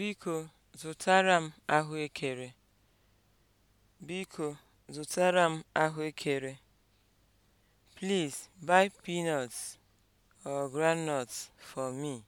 Biko zụtara m ahụekere. Biko zụtara m ahụekere. Please buy peanuts or groundnuts for me.